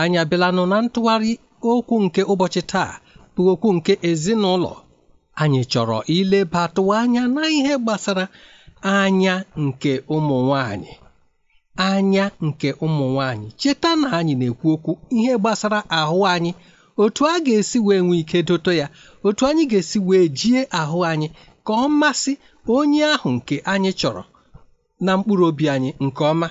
anyị abịalanụ na ntụgharị okwu nke ụbọchị taa bụ okwu nke ezinụlọ anyị chọrọ ilebatụ anya na ihe gbasara anya nke ụmụ nwanyị anya nke ụmụ nwanyị cheta na anyị na-ekwu okwu ihe gbasara ahụ anyị otu a ga-esi wee nwee ike dote ya otu anyị ga-esi wee jie ahụ anyị ka ọ masị onye ahụ nke anyị chọrọ na mkpụrụ obi anyị nke ọma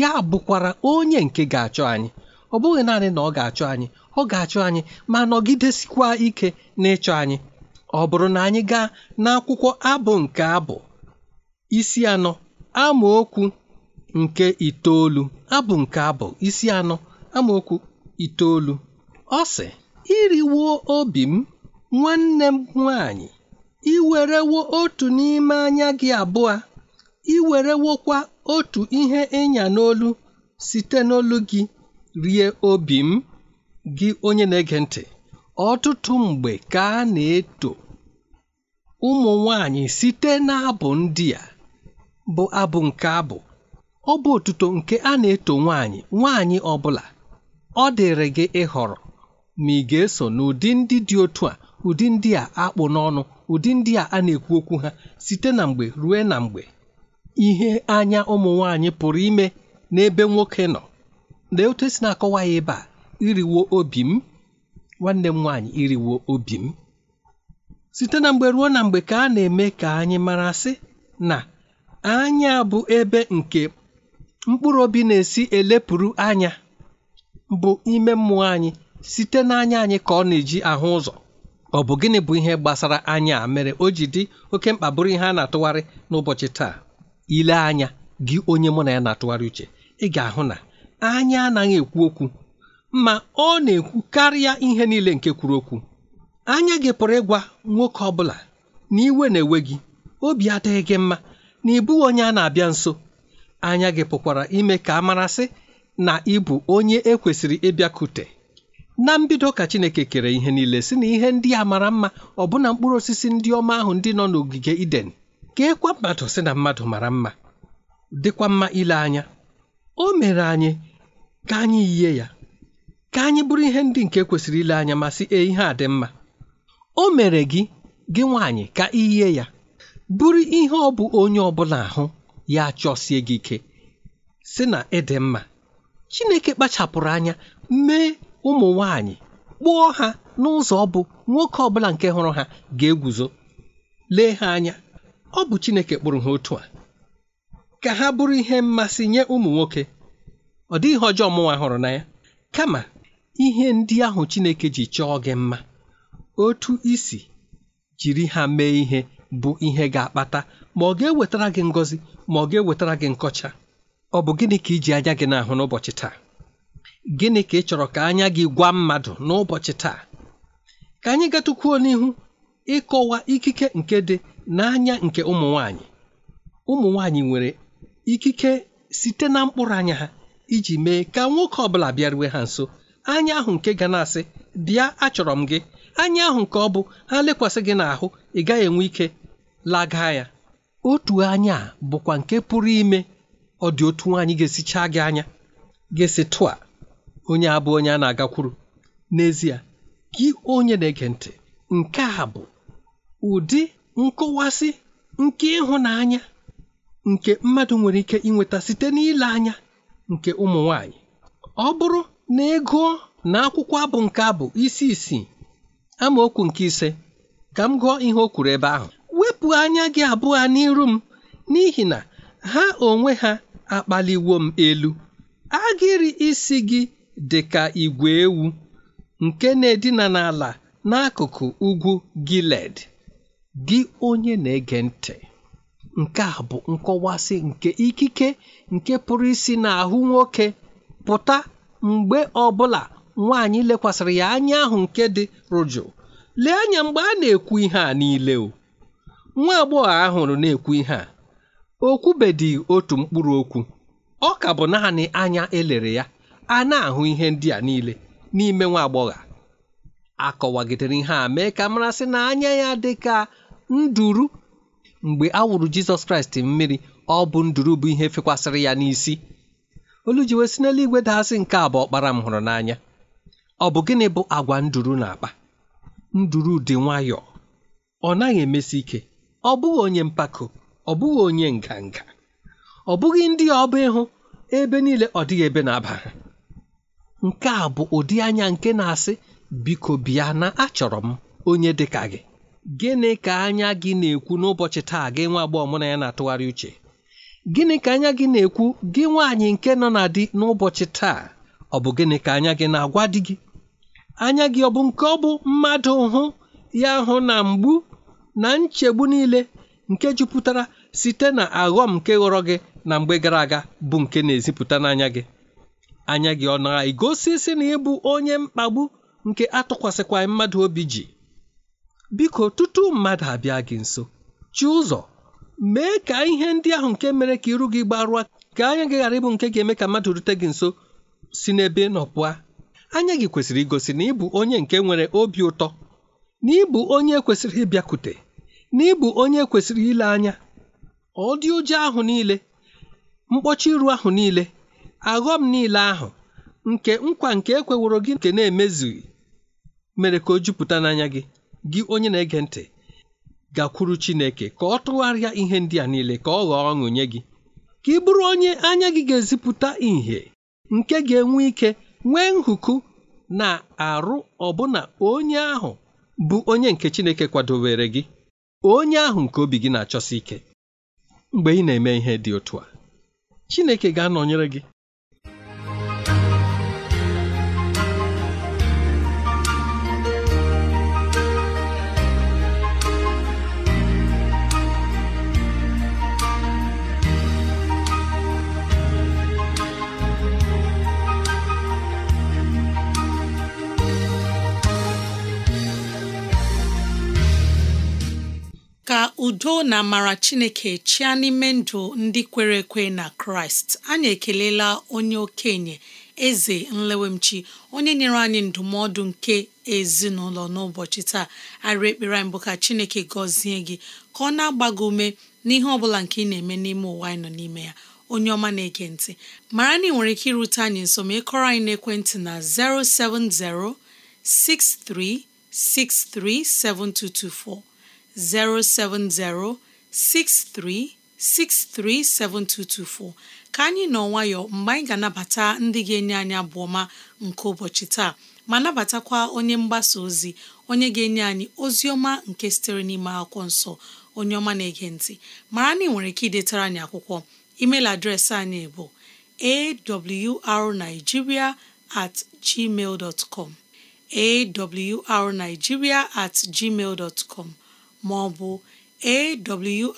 ya bụkwara onye nke ga-achọ anyị ọ bụghị naanị na ọ ga achọ anyị ọ ga achọ anyị ma nọgidesikwa ike ịchọ anyị ọ bụrụ na anyị gaa n'akwụkwọ abụ nke abụ isi anọ amaokwu nke itoolu abụ nke abụ isi anọ amaokwu itoolu ọ sị iriwo obi m nwanne m nwanyị iwerewo otu n'ime anya gị abụọ iwerewokwa otu ihe ịnya n'olu site n'olu gị rie obi m gị onye na-ege ntị ọtụtụ mgbe ka a na-eto ụmụ nwanyị site n'abụ ndị a bụ abụ nke abụ ọ bụ otuto nke a na-eto nwanyị nwanyị ọ bụla ọ dịrị gị ịhọrọ ma ị ga-eso n'ụdị ndị dị otu a ụdị ndị a akpụ n'ọnụ ụdị ndị a a na-ekwu okwu ha site na mgbe ruo na mgbe ihe anya ụmụ nwanyị pụrụ ime n'ebe nwoke nọ lee otu esi na-akọwa ya ebe a iriwo obi m nwanne m nwaanyị iriwo obi m site na mgbe ruo na mgbe ka a na-eme ka anyị mara sị na anya bụ ebe nke mkpụrụ obi na-esi elepụrụ anya bụ ime mmụọ anyị site n'anya anyị ka ọ na-eji ahụ ụzọ ọ bụ gịnị bụ ihe gbasara anya a mere o ji dị oke mkpa bụrụ ihe a na-atụgharị n'ụbọchị taa ile anya gị onye mụ na ya na-atụgharị uche ị ga-ahụ na anya anaghị ekwu okwu ma ọ na-ekwu karịa ihe niile nke kwuru okwu anya gị pụrụ ịgwa nwoke ọ bụla na iwe na-ewe gị obi adịghị gị mma na ịbụ onye a na-abịa nso anya gị pụkwara ime ka a marasị na ịbụ onye ekwesịrị ịbịakute na mbido ka Chineke kere ihe niile si na ihe ndị a mara mma ọbụna mkpụrụ osisi ndị ọma ahụ ndị nọ n'ogige Iden ịkwa e mmadụ si na mmadụ mara mma dịkwa mma ile anya o mere anyị ka anyị yie ya ka anyị bụrụ ihe ndị nke kwesịrị ile anya ma sị e ihe a dị mma o mere gị gị nwaanyị ka iyie ya bụrụ ihe ọ bụ onye ọbụla ahụ ya chọsie gị ike sị na ịdị mma Chineke kpachapụrụ anya mee ụmụ nwaanyị kpụọ ha n'ụzọ ọ bụ nwoke ọbụla nke hụrụ ha ga-eguzo lee ha anya ọ bụ Chineke kpụrụ ha otu a ka ha bụrụ ihe mmasị nye ụmụ nwoke ọ dịghị ọjọọ mụnwa hụrụ na ya kama ihe ndị ahụ Chineke ji chọọ gị mma otu isi jiri ha mee ihe bụ ihe ga-akpata ma ọ ga-ewetara gị ngọzi ma ọ ga-ewetara gị nkọcha ọ bụ gịnị ka iji anya gị n'ahụ n'ụbọchị taa gịnị ka ị chọrọ ka anya gị gwa mmadụ n'ụbọchị taa ka anyị gatukwuo n'ihu ịkọwa ikike nke dị n'anya nke ụmụ nwanyị ụmụ nwanyị nwere ikike site na mkpụrụ anya ha iji mee ka nwoke ọ bụla bịaruwe ha nso anya ahụ nke ga na-asị bịa achọrọ m gị anya ahụ nke ọ bụ ha lekwasị gị n'ahụ ị gaghị enwe ike laga ya otu anya bụkwa nke pụrụ ime ọ dị otu nwaanyị ga-esichaa gị anya ga-esi tụa onye abụ onye a na-agakwuru n'ezie gị onye na-ege ntị nke a bụ ụdị nkọwasị nke ịhụnanya nke mmadụ nwere ike inweta site n'ile anya nke ụmụ nwanyị ọ bụrụ na ego na akwụkwọ abụ nke abụ isi isi amaokwu nke ise ka m gụọ ihe o kwuru ebe ahụ wepụ anya gị abụọ n'iru m n'ihi na ha onwe ha akpaliwo m elu agịrị isi gị dị ka igwe ewu nke na-edina n'ala n'akụkụ ugwu Giled gị onye na-ege ntị nke a bụ nkọwasị nke ikike nke pụrụ isi n'ahụ nwoke pụta mgbe ọbụla nwaanyị lekwasịrị ya anya ahụ nke dị rụjụ lee anya mgbe a na-ekwu ihe a niile o nwa agbọghọ ahụrụ na-ekwu ihe a okwubedị otu mkpụrụ okwu ọ ka bụ naanị anya elere ya a na-ahụ ihe ndị a niile n'ime nwa agbọghọ akọwagidere ihe a mee ka marasị na anya ya dị ka nduru mgbe a wụrụ jizọs kraịst mmiri ọ bụ nduru bụ ihe fekwasịrị ya n'isi olu ji wee si n'eluigwe daasị nke a bụ ọkpara m hụrụ n'anya ọ bụ gịnị bụ agwa nduru na-akpa nduru dị nwayọọ ọ naghị emesi ike ọ bụghị onye mpako ọ bụghị onye nganga ọ bụghị ndị ọba ịhụ ebe niile ọ dịghị ebe na-aba ha nke a bụ ụdị anya nke na-asị biko bịa na achọrọ m onye dị ka gị gịnị ka anya gị na-ekwu n'ụbọchị taa gị nwa agbọghọ mụ na ya na-atụgharị uche gịnị ka anya gị na-ekwu gị nwaanyị nke nọ na di n'ụbọchị taa ọ bụ gịnị ka anya gị na-agwa di gị anya gị ọ bụ nke ọ bụ mmadụ hụ ya hụ na mgbu na nchegbu niile nke jupụtara site na aghọm nke ghọrọ gị na mgbe gara aga bụ nke na-ezipụta n'anya gị anya gị ọ na-egosi si na ịbụ onye mkpagbu nke atụkwasịkwaghị mmadụ obi ji biko tutu mmadụ abịa gị nso chi ụzọ mee ka ihe ndị ahụ nke mere ka iru gị gbarụa ka anya gị ghara ịbụ nke ga-eme ka mmadụ rute gị nso si n'ebe nọ pụa anya gị kwesịrị igosi na ịbụ onye nke nwere obi ụtọ na ịbụ onye kwesịrị ịbịakwute na ịbụ onye kwesịrị ile anya ọ dị ụjọ ahụ niile mkpọchi iru ahụ niile aghọm niile ahụ nke nkwa nke ekweworo gị nke na-emezughị mere ka o jupụta n'anya gị gị onye na-ege ntị gakwuru Chineke ka ọ tụgharịa ihe ndị a niile ka ọ ghọọ ọṅụ nye gị ka ị bụrụ onye anya gị ga-ezipụta ìhè nke ga-enwe ike nwee nhụkụ na arụ ọbụna onye ahụ bụ onye nke Chineke kwadowere gị onye ahụ nke obi gị na-achọsi ike mgbe ị na-eme ihe dị otu a Chineke ga-anọnyere gị udo na amara chineke chịa n'ime ndụ ndị kwere ekwe na kraịst anyị ekelela onye okenye eze nlewemchi onye nyere anyị ndụmọdụ nke ezinụlọ n'ụbọchị taa arị ekpere mbụ ka chineke gọzie gị ka ọ na-agba gị ume n'ihe ọbụla nke ị na-eme n'ime ụwa anyị nọ n'ime ya onye ọma na-ege ntị mara na ị nwere ike irute anyị nso ma ịkọrọ anyị n'ekwentị na 070 6363 7224 07063637224 ka anyị nọ nwayọ mgbe anyị ga-anabata ndị ga-enye anyị abụ ọma nke ụbọchị taa ma nabatakwa onye mgbasa ozi onye ga-enye anyị ozi ọma nke sitere n'ime akwụkwọ nsọ onye ọma na-ege ntị mara na ị nwere ike idetara anyị akwụkwọ email adreesị anyị bụ arigiria at gmail com awrnigeria at gmail com ma ọ bụ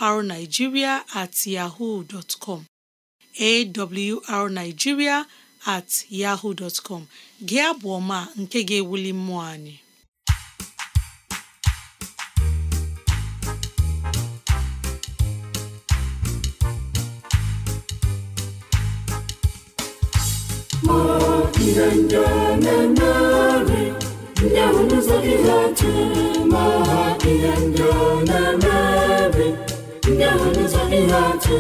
awrnigeria at yahoo dot com at yahoo dot com gị abụ ọma nke ga-ewuli mmụọ anyị ma ihe ndị na-emere ndị ahụ otu ndị ọ na eme ndị ahụ guzogide otu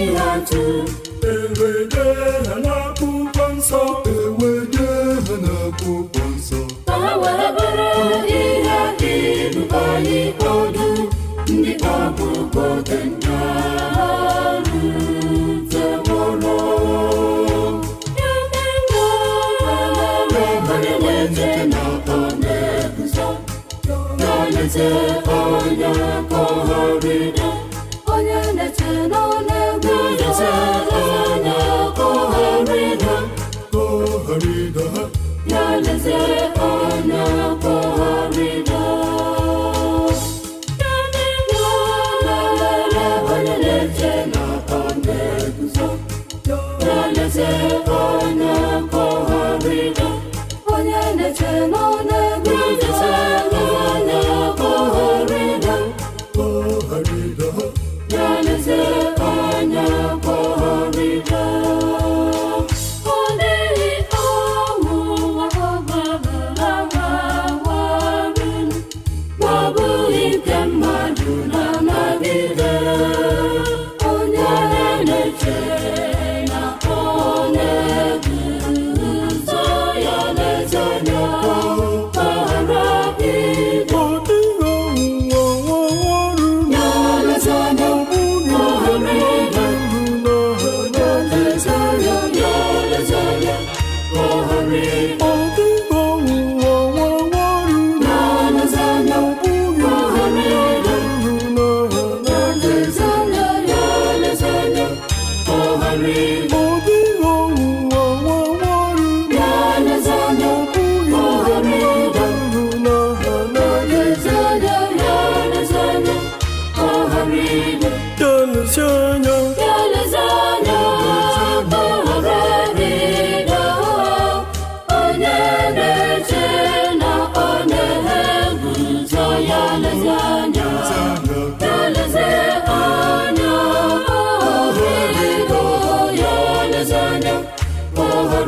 ịla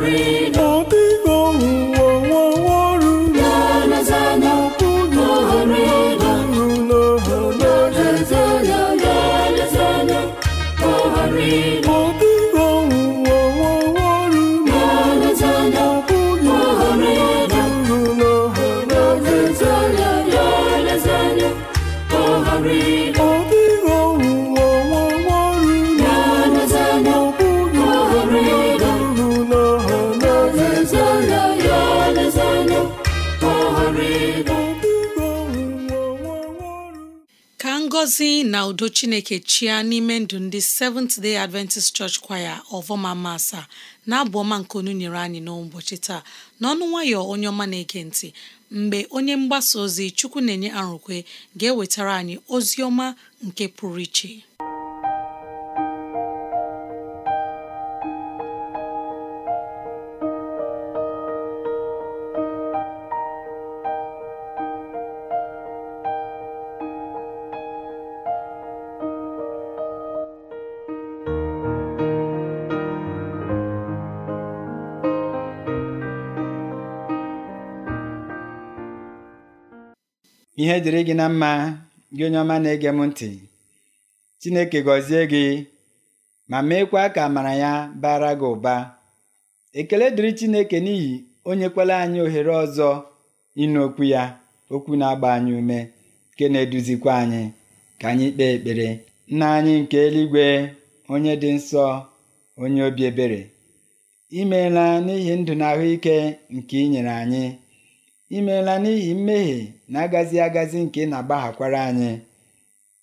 glory, ka udo chineke chia n'ime ndụ ndị Seventh Day Adventist Church Choir ọvọma masa na-abụ ọma nke onu nyere anyị n'ụbọchị taa n'ọnụ nwayọ onye ọma na-ege ntị mgbe onye mgbasa ozi Chukwu na-enye arụkwe ga-ewetara anyị ozi ọma nke pụrụ iche ihe dịrị gị na mma gị onye ọma na-ege m ntị Chineke gọzie gị ma meekwa ka amara ya bara gị ụba ekele dịrị Chineke n'ihi onyekwala anyị ohere ọzọ ịnụ okwu ya okwu na-agba anyị ume nke na-eduzikwa anyị ka anyị kpee ekpere nna anyị nke eluigwe onye dị nsọ onye obi ebere imeela n'ihi ndụ na ahụike nke ị nyere anyị i meela n'ihi mmehie na-agazi agazi nke ị na-agbaghakwara anyị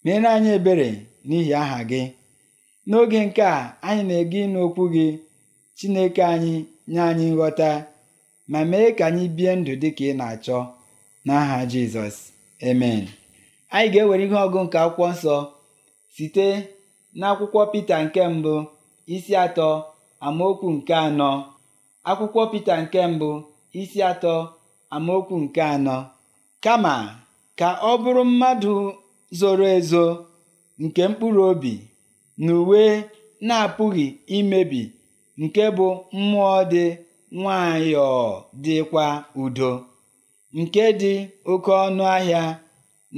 meere anyị ebere n'ihi aha gị n'oge nke a anyị na-ege ịnụ okwu gị Chineke anyị nye anyị nghọta ma mee ka anyị bie ndụ dị ka ị na-achọ n'aha Jizọs emen anyị ga-ewere ihe ọgụ nke akwụkwọ nsọ site n'akwụkwọ Pita nke mbụ isi atọ amaokwu nke anọ akwụkwọ Pita nke mbụ isi atọ amaokwu nke anọ kama ka ọ bụrụ mmadụ zoro ezo nke mkpụrụ obi na uwe na-apụghị imebi nke bụ mmụọ dị nwayọọ dịkwa udo nke dị oke ọnụ ahịa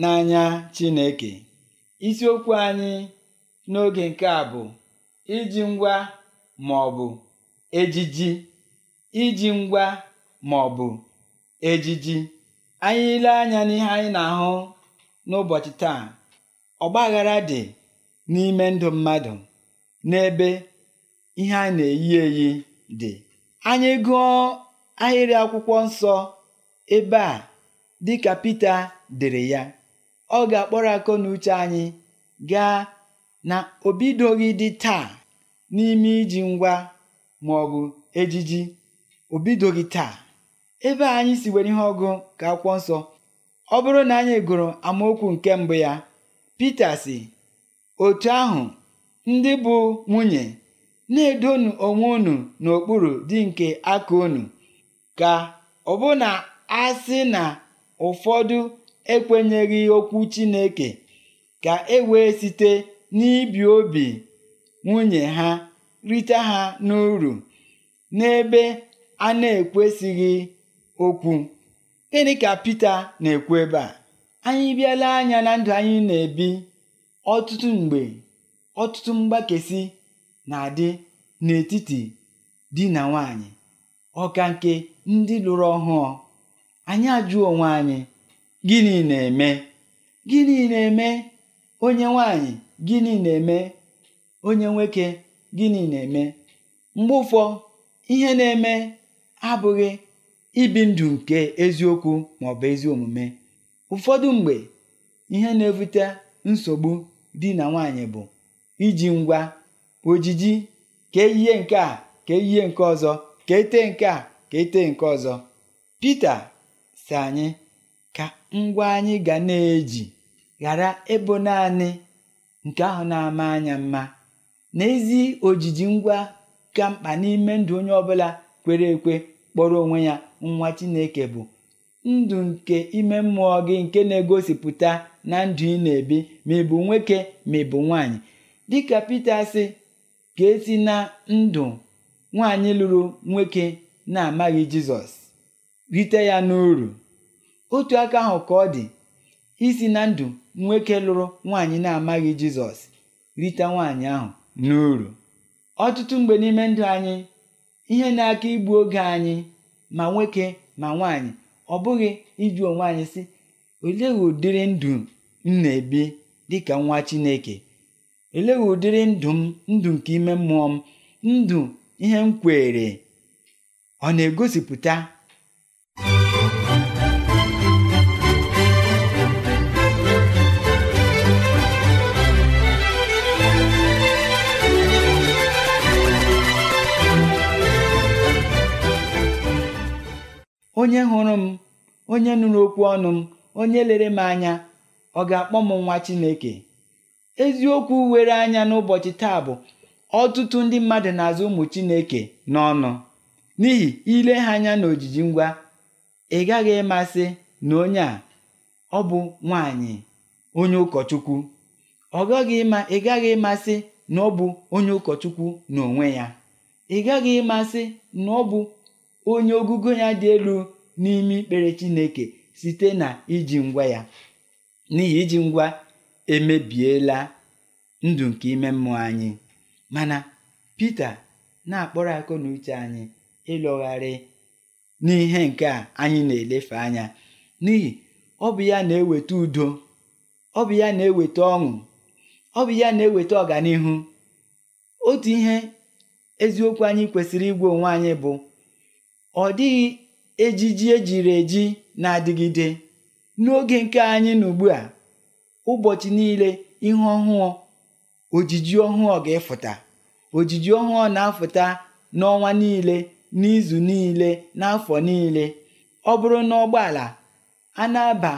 n'anya Chineke isiokwu anyị n'oge nke a bụ iji ngwa ma ọ bụ ejiji iji ngwa ma ọ bụ Ejiji anyị ile anya n'ihe anyị na-ahụ n'ụbọchị taa ọgbaghara dị n'ime ndụ mmadụ n'ebe ihe anyị na-eyi eyi dị anyị gụọ ahịrị akwụkwọ nsọ ebe a dịka Pita dere ya ọ ga-akpọrọ akọ na uche anyị gaa na obidoghị dị taa n'ime iji ngwa ma ejiji obidoghị taa ebe anyị si were ihe ọgụ ka akwụkwọ nsọ ọ bụrụ na anyị gụrụ amaokwu nke mbụ ya Pita si otu ahụ ndị bụ nwunye na-edonu onwe unu n'okpuru dị nke aka unu ka ọbụna a sị na ụfọdụ ekwenyeghị okwu Chineke ka e wee site n'ibi obi nwunye ha rite ha n'uru n'ebe a na-ekwesịghị okwu gịnị ka Pita na-ekwu ebe a anyị bịala anya na ndụ anyị na-ebi ọtụtụ mgbe ọtụtụ mgbakesi na-adị n'etiti di na nwanyị ọka nke ndị lụrụ ọhụụ anyị ajụọ onwe anyị gịnị na-eme gịnị na-eme onye nwanyị gịnị na-eme onye nwoke gịnị na-eme mgbe ụfọ ihe na-eme abụghị ibi ndụ nke eziokwu maọbụ ezi omume ụfọdụ mgbe ihe na-ebute nsogbu di na nwaanyị bụ iji ngwa ojiji ka ihe nke a ka ihe nke ọzọ ka ete nke a ka ete nke ọzọ Pita si anyị ka ngwa anyị ga na-eji ghara ịbụ naanị nke ahụ na-ama anya mma n'ezi ojiji ngwa ka mkpa n'ime ndụ onye ọbụla kwere ekwe kpọrọ onwe ya nwa Chineke bụ ndụ nke ime mmụọ gị nke na-egosipụta na ndụ ị na-ebi ma ị bụ nwoke ma ị bụ nwaanyị dịka Pita sị ka esi na ndụ nwaanyị lụrụ nwoke na-amaghị Jizọs rite ya n'uru otu aka ahụ ka ọ dị isi na ndụ nwoke lụrụ nwaanyị na-amaghị Jizọs rite nwaanyị ahụ n'uru ọtụtụ mgbe n'ime ndụ anyị ihe na-aka igbu oge anyị ma nwoke ma nwaanyị ọ bụghị ịjụ onwe anyị sị olee ụdịrị ndụ m na-ebi dịka nwa Chineke olee ụdịrị ndụ m ndụ nke ime mmụọ m ndụ ihe m kwere ọ na-egosipụta onye hụrụ m onye nụrụ okwu ọnụ m onye lere m anya ọ ga-akpọ m nwa Chineke eziokwu were anya n'ụbọchị taa bụ ọtụtụ ndị mmadụ na-azụ ụmụ Chineke n'ọnụ n'ihi ile ha anya n'ojiji ngwa ị gaghị ịmasị na onye a ọ bụ nwanyị onye ụkọchukwu ọ gaghị ịma ị gaghị ịmasị na ọ bụ onye ụkọchukwu n'onwe ya ị gaghị ịmasị na ọ bụ onye ogugo ya dị elu n'ime ikpere Chineke site na iji ngwa ya n'ihi iji ngwa emebiela ndụ nke ime mmụọ anyị mana Pita na-akpọrọ akụ na uche anyị ịlọgharị n'ihe nke a anyị na-elefe anya n'ihi ọ bụ ya na-eweta udo ọ bụ ya na-eweta ọṅụ ọ bụ ya na-eweta ọganihu otu ihe eziokwu anyị kwesịrị igwe onwe anyị bụ ọ dịghị ejiji ejiri eji na-adịgide n'oge nke anyị na ugbu a ụbọchị niile ihe ọhụụ ojiji ọhụụ ga-efụta ojiji ọhụụ na-afụta n'ọnwa niile n'izu niile n'afọ niile ọ bụrụ na ụgbọala a na-aba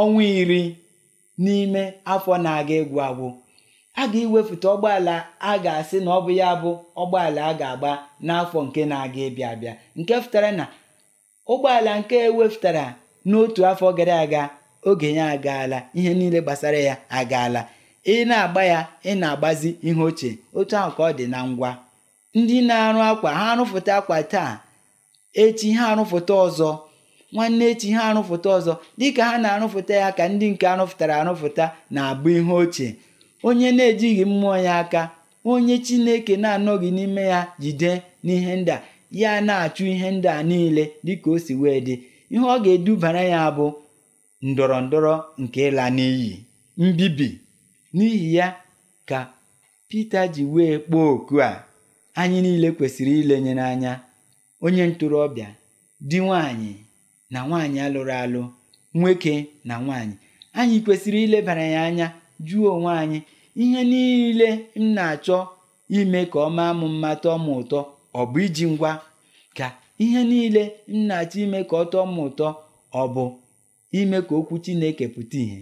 ọnwa iri n'ime afọ na-aga egwu agwụ a ga-ewepụta ụgbọala a ga-asị na ọ bụ ya bụ ụgbọala a ga-agba n'afọ nke na-aga ịbịa abịa nke fụtara na ụgbọala nke ewepụtara n'otu afọ gara aga oge ya agaala ihe niile gbasara ya agaala ị na-agba ya ị na-agbazi ihe ochie otu ahụ ka ọ dị na ngwa ndị na-arụ akwa ha arụfụta akwa taa echi ha arụfụta ọzọ nwanne echi ha arụfụta ọzọ dịka ha na-arụfụta ya ka ndị nke arụfụtara arụfụta na-abụ ihe ochie onye na-ejighị mmụọ ya aka onye Chineke na-anọghị n'ime ya jide n'ihe ndị a ya na-achụ ihe ndị a niile dịka o si wee dị ihe ọ ga-edubara ya bụ ndọrọ ndọrọ nke ịla n'iyi mbibi n'ihi ya ka Pita ji wee kpọọ oku a anyị niile kwesịrị ilenye n'anya onye ntorobịa di nwanyị na nwaanyị alụrụ alụ nwoke na nwaanyị anyị kwesịrị ilebara ya anya jụọ onwe anyị ihe niile m na-achọ ime ka ọ maa m mma tọọ m ụtọ ọ bụ iji ngwa ka ihe niile m na-achọ ime ka ọ tọọ m ụtọ ọ bụ ime ka okwu Chineke pụta ìhè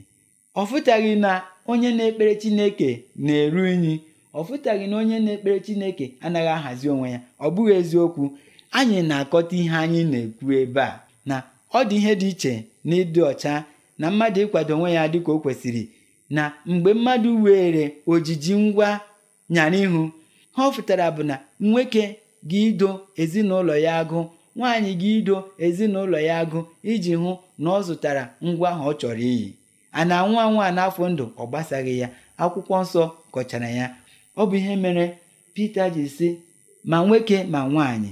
ọ fụtaghị na onye na-ekpere Chineke na-eru unyi ọ fụtaghị na onye na-ekpere Chineke anaghị ahazi onwe ya ọ bụghị eziokwu anyị na-akọta ihe anyị na-ekwu ebe a na ọ dị ihe dị iche na ịdị ọcha na mmadụ ịkwado onwe ya dị ka o kwesịrị na mgbe mmadụ were ojiji ngwa nyara ihu ha ọfụtara bụ na nwoke gị ido ezinụlọ ya agụ nwaanyị gị ido ezinụlọ ya agụ iji hụ na ọ zụtara ngwa ahụ ọ chọrọ iyi a na-anwụ anwụ a n'afọ ndụ ọ gbasaghị ya akwụkwọ nsọ kọchara ya ọ bụ ihe mere Pita ji sị ma nwoke ma nwaanyị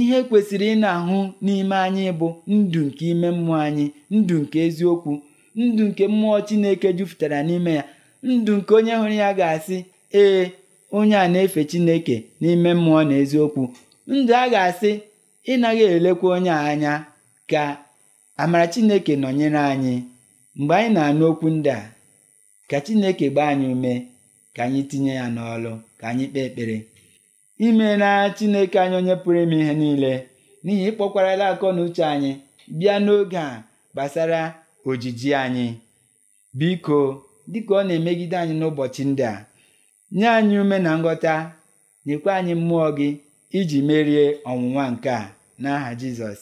ihe kwesịrị ị na-ahụ n'ime anyị bụ ndụ nke ime mmụọ anyị ndụ nke eziokwu ndụ nke mmụọ chineke jupụtara n'ime ya ndụ nke onye hụrụ ya ga-asị ee onye a na-efe chineke n'ime mmụọ na eziokwu ndụ a ga-asị ịnaghị elekwa onye a anya ka amara chineke nọnyere anyị mgbe anyị na-anụ okwu ndị a ka chineke gbaa anyị ume ka anyị tinye ya n'ọlụ ka anyị kpee ekpere imeela chineke anyị onye pụrụ ime ihe niile n'ihi ịkpọkwarala akọ na uche anyị bịa n'oge a gbasara ojiji anyị biko dịka ọ na-emegide anyị n'ụbọchị ndị a nye anyị ume na nghọta nyekwa anyị mmụọ gị iji merie ọnwụnwa nke a n'aha Jizọs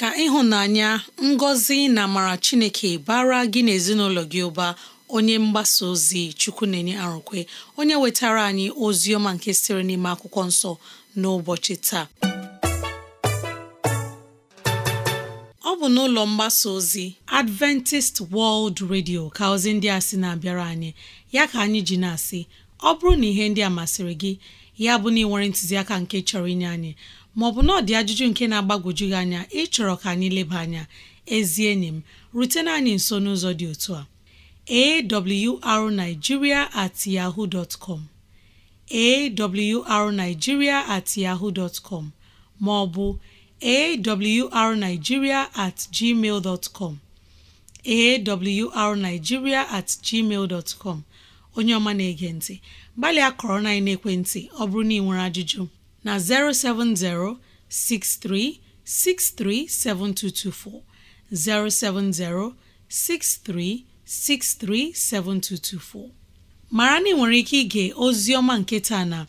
ka ịhụnanya ngọzi na amara Chineke bara gị n'ezinụlọ gị ụba onye mgbasa ozi chukwu na-enye arụkwe onye wetara anyị ozi ọma nke sịrị n'ime akwụkwọ nsọ n'ụbọchị taa ọ bụ n'ụlọ mgbasa ozi Adventist World Radio ka ozi ndị a sị na-abịara anyị ya ka anyị ji na-asị ọ bụrụ na ihe ndị a masịrị gị ya bụ na ị nwere ntụziaka nke chọrọ inye anyị maọbụ na ọ dị ajụjụ nke na-agbagwoju gị anya ịchọrọ ka anyị leba anya ezi enyi m rutena anyị nso n'ụzọ dị otu a awrnigeria at yahoo dot com at yahoo dot com ma ọ bụ awrnigeria at gmail dot com awrnigeria at gmail dot com onye ọma na-ege ntị gbalịa kọrọ na ekwentị ọ bụrụ na ị nwere ajụjụ na 070 6363 7224 070 63 637224 mara na nwere ike ige ozi ọma nketa na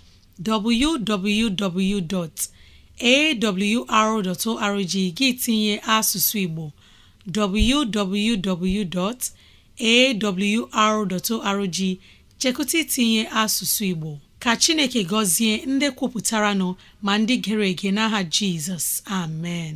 arrg gị tinye asụsụ Igbo www.awr.org chekụta itinye asụsụ Igbo ka Chineke gọzie ndị kwupụtara nọ ma ndị gere ege n'aha Jizọs amen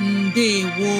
ndewo